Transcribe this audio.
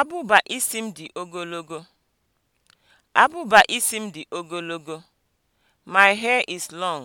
Abụba isi m dị ogologo. Abụba isi m dị ogologo. My hair is long.